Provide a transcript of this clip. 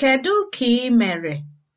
Kedụ ka ị mere?